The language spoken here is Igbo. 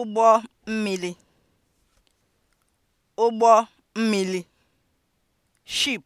ụgbọ mmili ụgbọ mmili (ship)